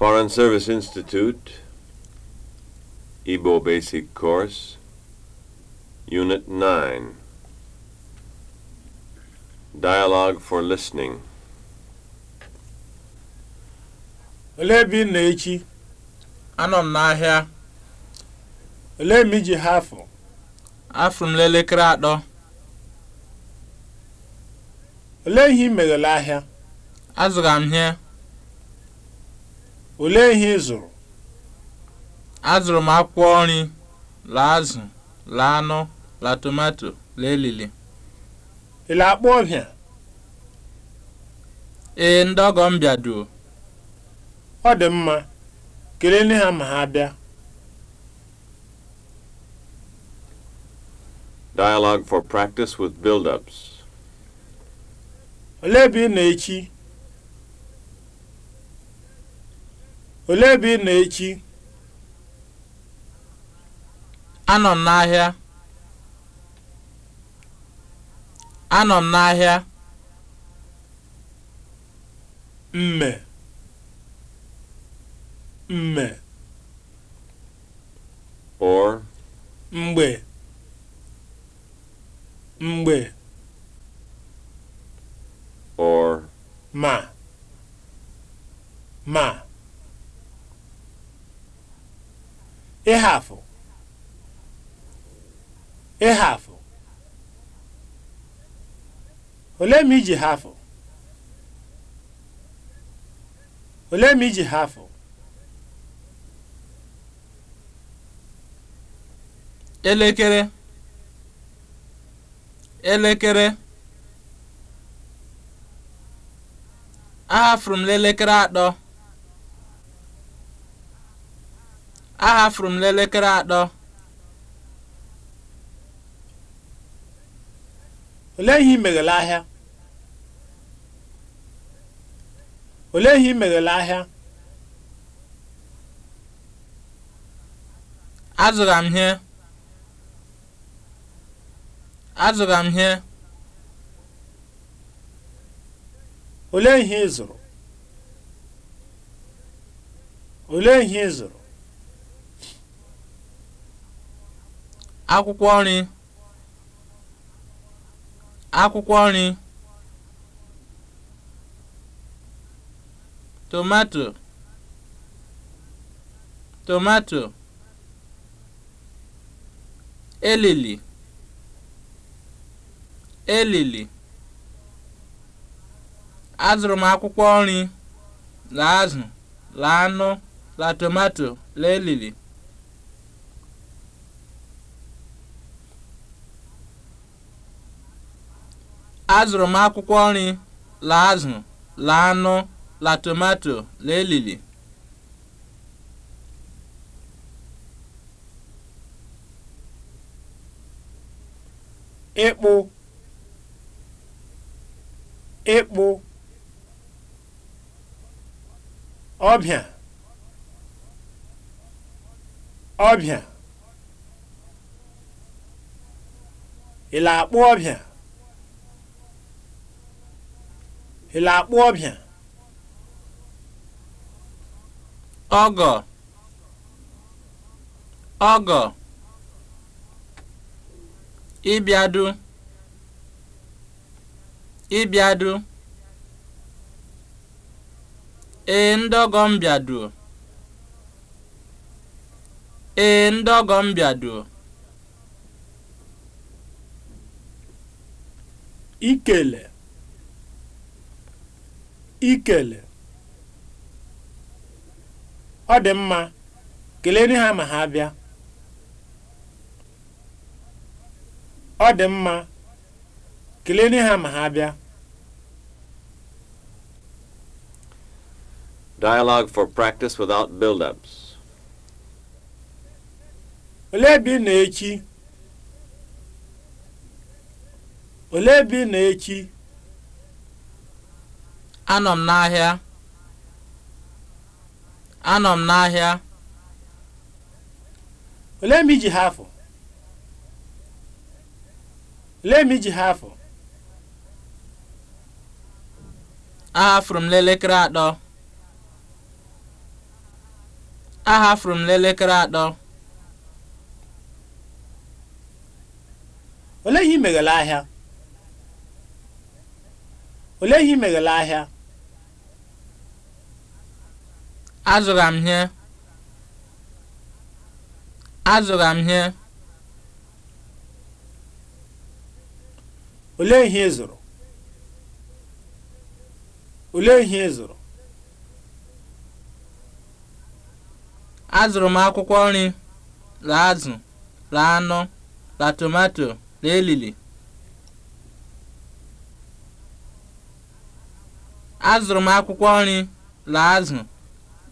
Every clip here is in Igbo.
Foreign Service Institute, Igbo Basic Course, Unit 9. Dialogue for Listening. Olee ebe ị na-echi? Anọ m n'ahịa. Olee mgbe iji ha afọ? Afọ m n'elekere atọ. Olee ihe ị meghela ahịa? azụga m ihe. Olee ihe ị zụrụ? Azụrụ m akwụkwọ nri, la azụ, la anụ, la tomato, la elili. Ị la-akpọ ọbịa? Ee, ndị ọgọ m bịaduo. Ọ dị mma, kelee nne ha ma ha bịa. Dialogue for practice with build-ups. Olee ebe ị na-echi? olee ebe ị na echi anọ m n'ahịa anọ n'ahịa mme mme or mgbe mgbe or ma ma ịhafụ ịhafụ ole ma iji hafụ ole ma iji hafụ elekere elekere ahafụrụ m n'elekere atọ ahafuru m n'elekere atọ olee ihe ị meghele ahịa olee ihe m ihe ihe ị zụrụ akwụkwọ nri akwụkwọ nri tomato tomato elili elili azụrụ m akwụkwọ nri la azụ la anụ la tomato la elili azụrụ m akwụkwọ nri la azụ la anụ la tomato la elili ịkpụ ịkpụ ọbịa ọbịa ị la akpụ ọbịa ele akpụ ọbịa ọgọ ọgọ ịbịadu ịbịadu ee ndọgọ mbịadu ee ndọgọ mbịadu ikele ikele ọ dị mma kelee ha ma ọ dị mma kelee ha ma ha for practice without build-ups. Olee ebe ị na-echi? echi anọ m n'ahịa anọ m n'ahịa olee mgbe iji ha afọ olee mgbe iji ha afọ ahafụrụ m n'elekere atọ ahafụrụ m n'elekere atọ olee ihe ị ahịa olee ihe ị ahịa azụrụ ihe azụrụ ihe olee ihe ịzụrụ olee ihe ịzụrụ azụrụ m akwụkwọ nri la azụ la anụ la tomato la elili azụrụ m akwụkwọ nri la azụ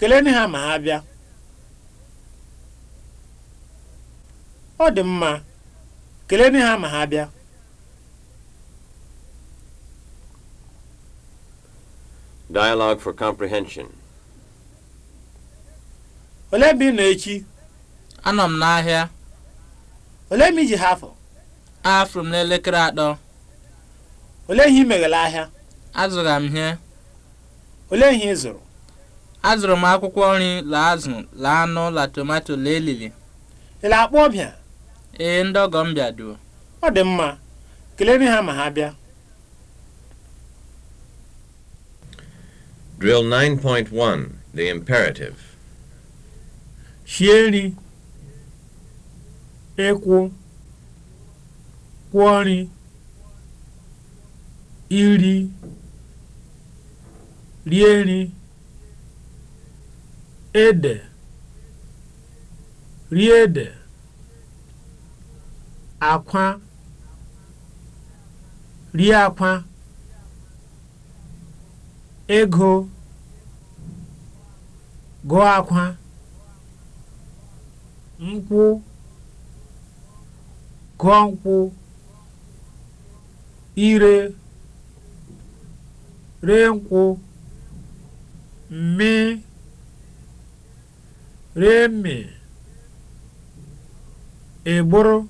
kelee ha ma ha bịa ọ dị mma kelee ha ma ha bịa Dialogue for comprehension. Olee ebe ị echi? Anọ m n'ahịa. Olee m iji ha afọ? Afụrụ m n'elekere atọ. Olee ihe ị ahịa? Azụrụ m ihe. Olee ihe ị zụrụ? azụrụ m akwụkwọ nri la azụ la anụ la tomato la elili ị na-akpọ ọbịa ee ndị ọgọ m bịaduo ọ dị mma kelere ha ma ha bịa Drill 9.1 The Imperative Shie nri ịkwụ kwụọ nri iri rie nri ede rie ede akwa rie akwa ego gọ akwa nkwụ gụọ nkwụ ire ree nkwụ mmee remị ịgbụrụ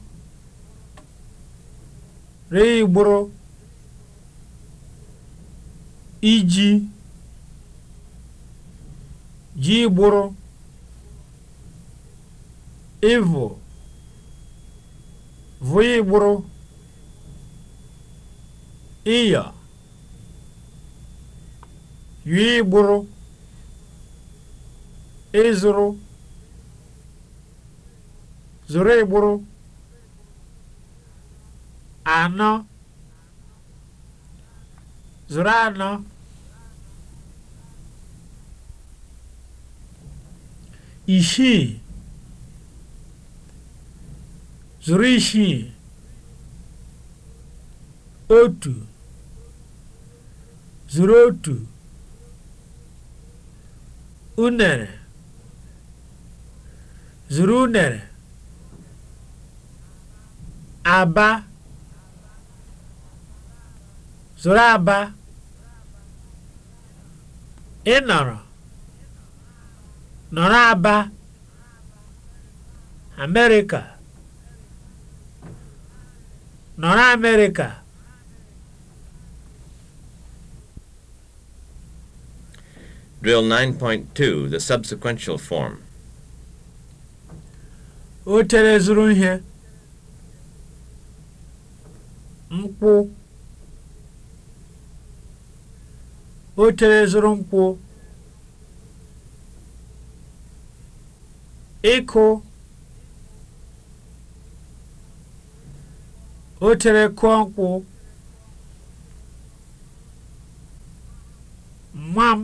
reigbụrụ iji ji gbụrụ ịvụ vụịgbụrụ ịyọ yụọ ịzụrụ zụrụ ịgbụrụ anọ zụrụ anọ isii zụrụ isii otu zụrụ otu unere zụrụ unere aba Zoro aba ịnọrọ nọrọ aba amerịka nọrọ amerịka Drill 9.2, the subsequential form. O tere zuru ihe. nkwụ Ochere zụrụ nkwụ ịkụ otere kụọ nkwụ nwa m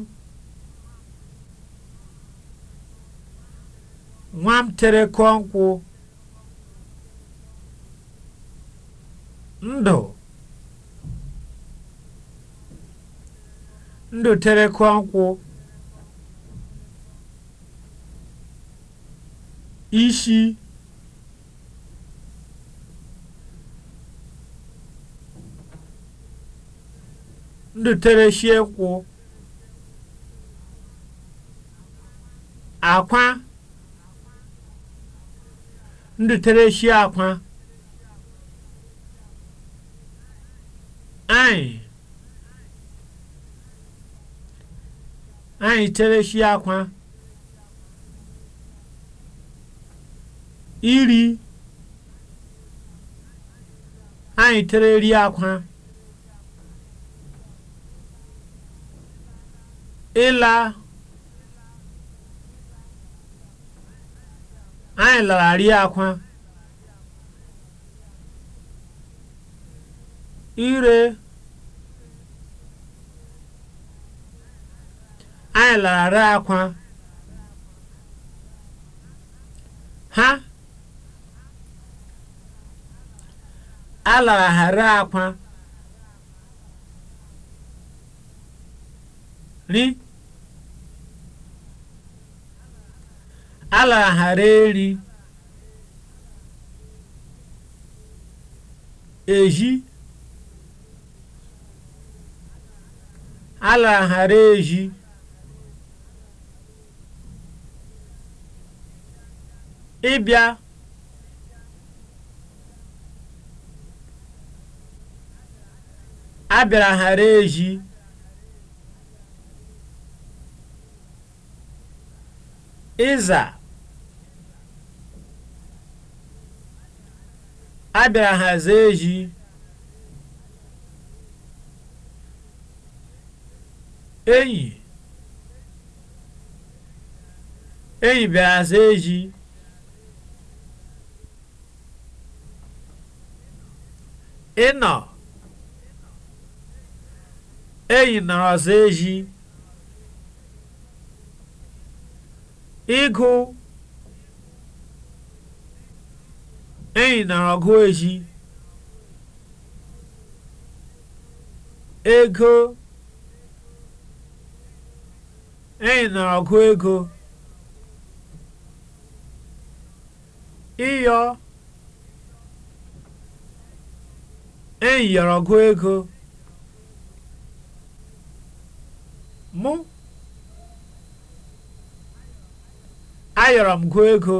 nwa tere kụọ nkwụ ndoterekwa nkwụ ishi ndotereshi nkwụ akwa ndotereshi akwa anyị anyị shi akwa iri anyị tere tereri akwa ịla anyị lara lararị akwa ire na-alara akwa ha alaghara akwa ri alaghara eri eji alaghara eji ịbịa a ghara eji ịza a bịara haza eji eyi eyi bịara eji ịnọ eyi nara ezi ịgụ eyi nara ọgụ eji ego eyi nara ego ịyọ e yiri ọgụ ego mụ ayọrọ m gụ ego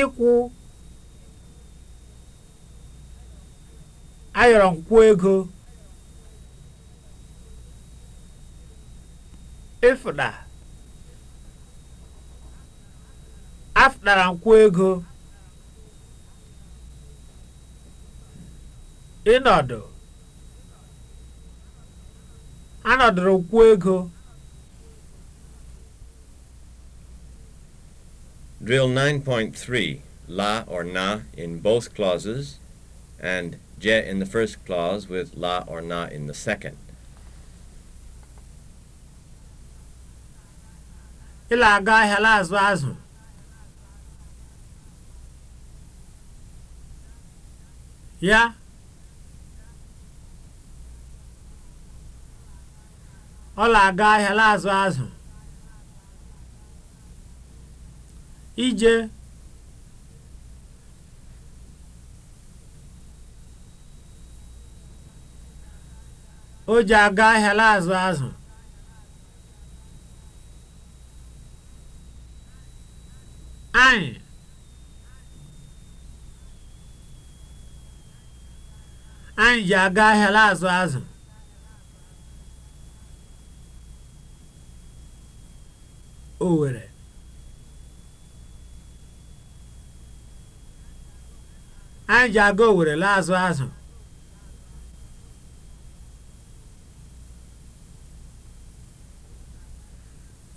ịkwụ ayọrọ m kwụ ego ịfụda afụdara m kwụ ego ịnọdụ anọdụrụ kwuo ego Drill 9.3 la or na in both clauses and je in the first clause with la or na in the second. Ịla aga ahịa la azụ azụ. Ya ọ na-aga ahịa na-azụ azụ ije o ji aga ahịa na-azụ azụ anyị anyị ji aga ahịa na-azụ azụ Òwèrè anyị ji aga owere laa azụ azụ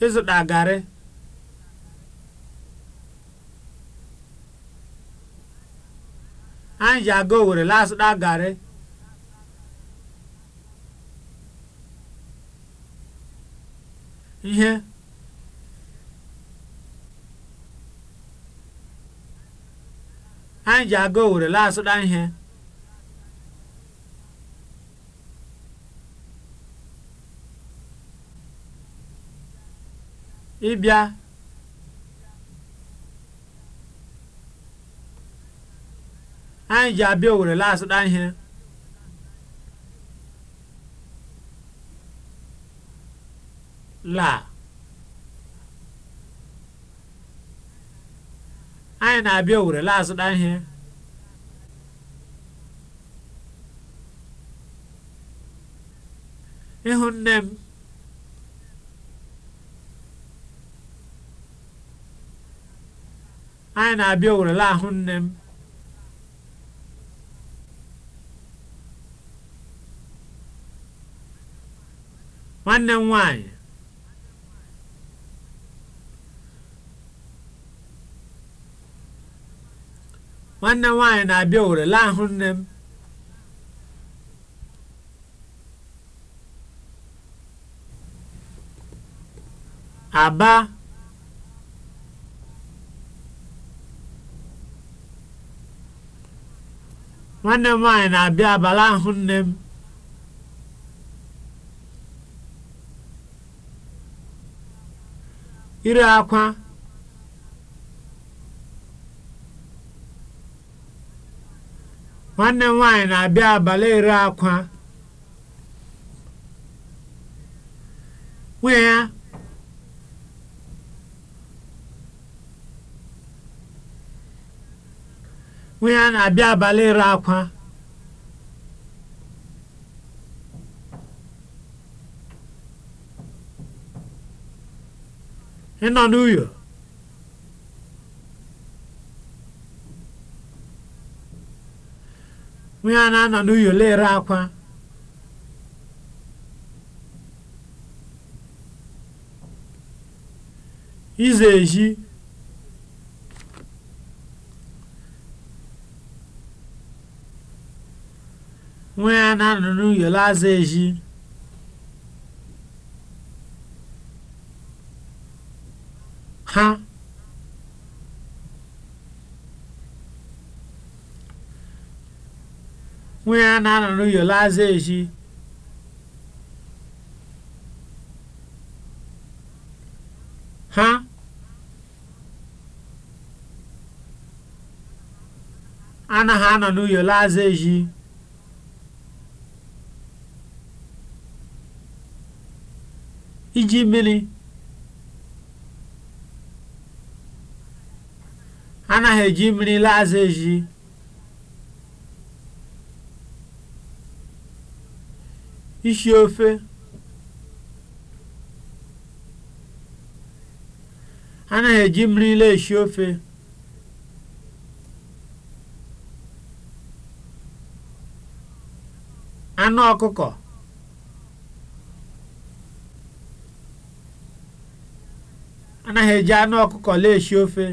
ịzụta garị anyị ji aga owere laa azụta garị ihe anyị ji aga Owere laa asụda ihe ịbịa anyị ji abịa Owere laa asụda ihe laa anyị na-abịa Owere laa azụta ihe ịhụ nne m anyị na-abịa Owere laa ahụ nne m nwanne m nwanyị nwanne m nwaanyị na-abịa owere laa ahụ nne m aba nwanne m nwaanyị na-abịa abalị ahụ nne m ire akwa nwanne m na-abịa abalị ere akwa nwunye ya nwunye ya na-abịa abalị ere akwa ịnọ n'uyo onye a na-anọ n'uyolo ere akwa ize ezi nwa ya na-anọ n'uyolo aza ezi ha Mulher na no yo lazeji. Ha? anaghị anọ no no yo Iji mmiri. Anaghị eji mmiri lazeji. ishi ofe anaghị eji mmiri esi ofe anụ ọkụkọ anaghị eji anụ ọkụkọ esi ofe